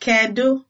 Kedu?